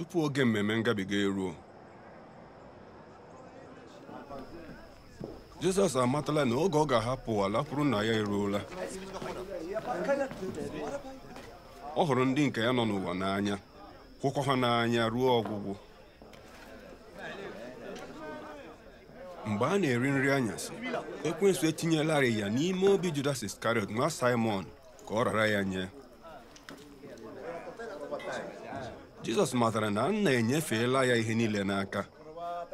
tupu oge mmemme ngabiga eruo Jizọs amatala na oge ọ ga-ahapụ ala kwuru na ya eruola ọ hụrụ ndị nke ya nọ n'ụwa n'anya kwụkwọ ha n'anya ruo ọgwụgwụ mgbe a na-eri nri anyasị ekwensu etinyelarị ya n'ime obi Judas Iskarịọt nwa Simon ka ọ rara ya nye Jizọs matara na nna enyefela ya ihe niile n'aka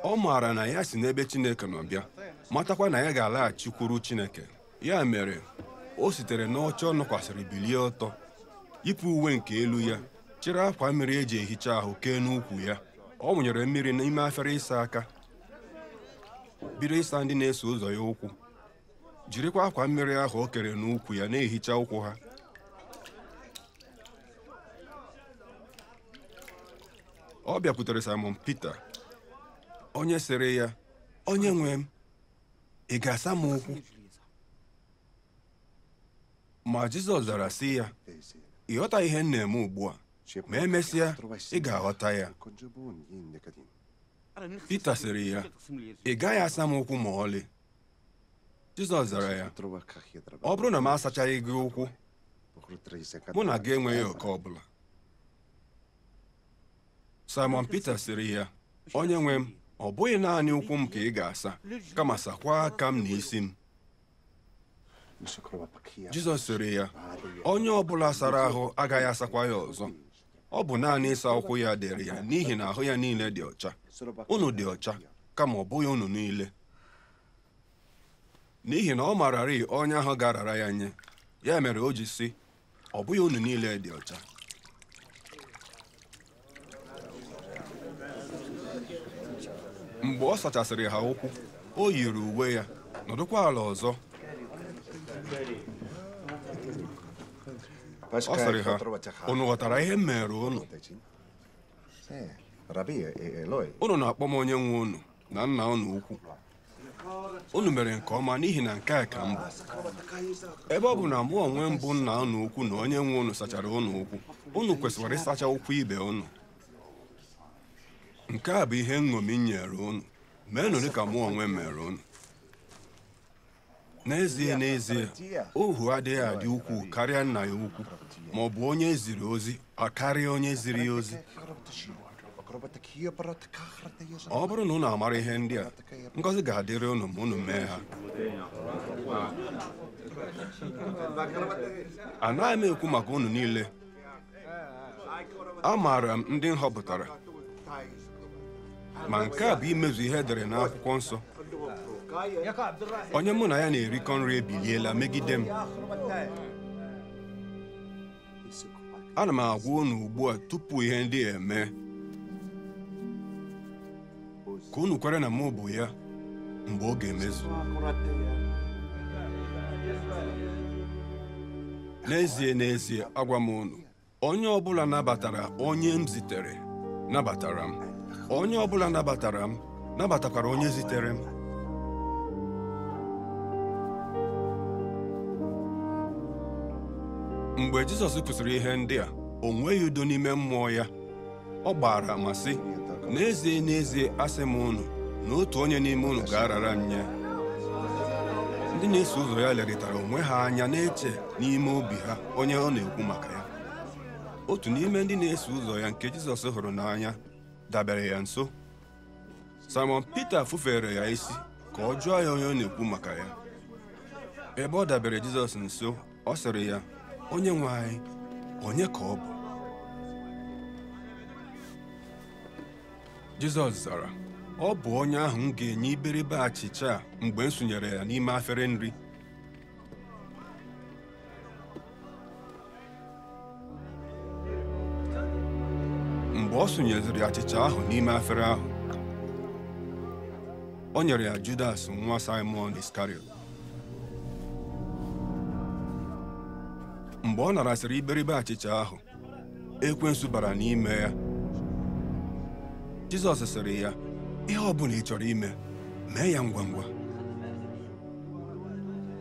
ọ maara na ya si n'ebe Chineke nọ bịa matakwa na ya ga-alaghachikwuru Chineke ya mere o sitere n'ọcha ọ nọkwasịrị bilie ọtọ yipụ uwe nke elu ya chịrị akwa mmiri e ji ehicha ahụ kee n'ukwu ya ọ wụnyere mmiri n'ime afere ịsa aka bido ịsa ndị na-eso ụzọ ya ụkwụ jirikwa akwa mmiri ahụ o kere n'ukwu ya na-ehicha ụkwụ ha ọ bịakwutere Simon Peter onye sịrị ya onye nwe m ị ga-asa m ụkwụ ma Jizọs zara sị ya ị ghọta ihe m na-eme ugbu a ma emesịa ị ga-aghọta ya Peter sịrị ya ị gaghị asa m ụkwụ ma ọlị Jizọs zara ya ọ bụrụ na m asachaghị gị ụkwụ mụ na gị enweghị oke ọ bụla Simon Peter sịrị ya onye nwe m ọ bụghị naanị ụkwụ m ka ị ga-asa kama sakwa aka m na isi m Jizọs sịrị ya onye ọ bụla sara ahụ agaghị asakwa ya ọzọ ọ bụ naanị ịsa ụkwụ ya dịrị ya n'ihi na ahụ ya niile dị ọcha unu dị ọcha kama ọ bụghị unu niile n'ihi na ọ mararị onye ahụ ga ya nye ya mere o ji sị ọ bụghị unu niile dị ọcha mgbe ọ sachasịrị ha ụkwụ o yiri uwe ya nọdụkwa ala ọzọ ọ sịrị ha unu ghọtara ihe m mere unu unu na-akpọ m onye nwe unu na nna unu ukwu unu mere nke ọma n'ihi na nke a ka m bụ ebe ọ bụ na mụ onwe mbụ nna unu ukwu na onye nwe unu sachara unu ukwu unu kwesịkwara ịsacha ụkwụ ibe unu nke a bụ ihe nṅomi nyere unu meenụ ka mụ onwe mere unu n'ezie n'ezie ohu adịghị adị ukwuu karịa nna ya ukwu ma ọ bụ onye ziri ozi ọ karịa onye ziri ozi ọ bụrụ na unu amara ihe ndị a ngọzi ga-adịrị unu ma unu mee ha anaghị m ekwu maka unu niile amaara m ndị m ma nke a bụ imezu ihe edere n'akwụkwọ nsọ onye mụ na ya na-erikọ nri ebiliela megide m ana m agwa unu ugbu a tupu ihe ndị a eme ka unu kwere na mụ bụ ya mgbe ga emezu n'ezie n'ezie agwa m unu onye ọ bụla nabatara onye m zitere nabatara m onye ọbụla nabatara m nabatakwara onye zitere m mgbe Jizọs kwụsịrị ihe ndị a o nweghị udo n'ime mmụọ ya ọ gbara ma sị n'ezie n'ezie asị m unu na otu onye n'ime unu ga-arara m nye ndị na-eso ụzọ ya lerịtara onwe ha anya na-eche n'ime obi ha onye ọ na-ekwu maka ya otu n'ime ndị na-eso ụzọ ya nke Jizọs hụrụ n'anya dabere ya nso Simon peter fufere ya isi ka ọ jụọ ya onye ọ na-ekwu maka ya ebe ọ dabere Jizọs nso ọ sịrị ya onye nwe anyị onye ka ọ bụ Jizọs zara ọ bụ onye ahụ m ga-enye iberibe achịcha mgbe m sonyere ya n'ime afere nri ọ sụnyeziri achịcha ahụ n'ime afere ahụ o nyere ya Judas nwa Simon Iscariot mgbe ọ narasịrị iberibe achịcha ahụ ekwensu bara n'ime ya Jizọs sịrị ya ihe ọ bụla ị chọrọ ime mee ya ngwa ngwa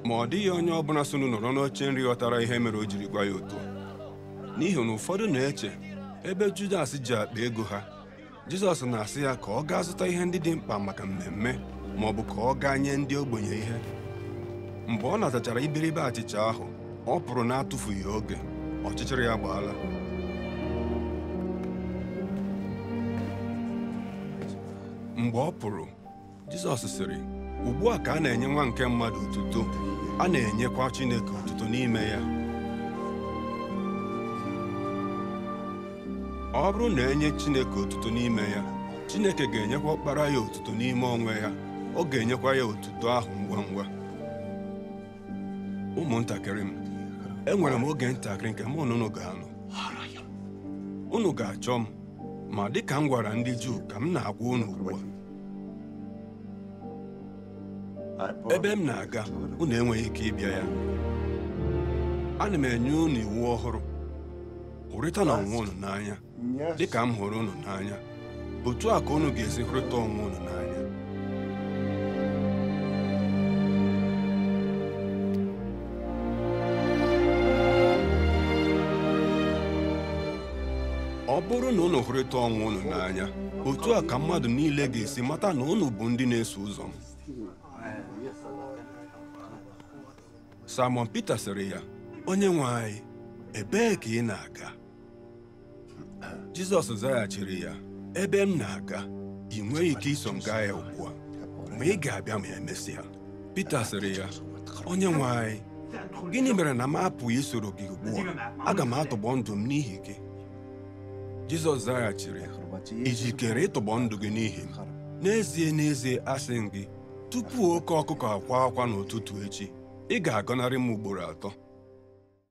ma ọ dịghị onye ọbụla sonụ nọrọ n'oche nri ghọtara ihe mere o jiri gwa ya otu n'ihi na ụfọdụ na-eche ebe Judas ji akpa ego ha Jizọs na-asị ya ka ọ gaa zụta ihe ndị dị mkpa maka mmemme ma ọ bụ ka ọ gaa nye ndị ogbenye ihe mgbe ọ natachara iberibe achịcha ahụ ọ pụrụ na-atụfughị oge ọchịchịrị ya gbaala mgbe ọ pụrụ Jizọs sịrị ugbu a ka a na-enye nwa nke mmadụ otuto a na-enyekwa Chineke otuto n'ime ya ọ bụrụ na enye Chineke otuto n'ime ya Chineke ga-enyekwa ọkpara ya otuto n'ime onwe ya ọ ga-enyekwa ya otuto ahụ ngwa ngwa ụmụntakịrị m enwere m oge ntakịrị nke mụ na unu ga-anọ unu ga-achọ m ma dịka m gwara ndị Juu ka m na-agwa unu ugbu a ebe m na-aga unu enweghị ike ịbịa ya ana m enye unu iwu ọhụrụ hụrịta na onwe unu n'anya dịka m hụrụ unu n'anya otu a ka unu ga-esi hụrịta onwe unu n'anya ọ bụrụ na unu hụrịta onwe unu n'anya otu a ka mmadụ niile ga-esi mata na unu bụ ndị na-eso ụzọ m Simon Peter sịrị ya onye nwe anyị ebee ka ị na-aga Jizọs zaghachiri ya ebe m na-aga ị nweghị ike iso m gaa ya ugbu a ma ị ga-abịa ma emesịa Pita sịrị ya onye nwe anyị gịnị mere na m apụghị isoro gị ugbu a aga m atụgbọ ndụ m n'ihi gị Jizọs zaghachiri ị jikere ịtụgbọ ndụ gị n'ihi m n'ezie n'ezie asị m gị tupu oke ọkụkọ akwa akwa n'ụtụtụ echi ị ga-agọnarị m ugboro atọ